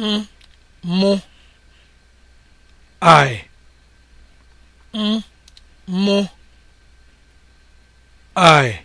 m mụ I mụ I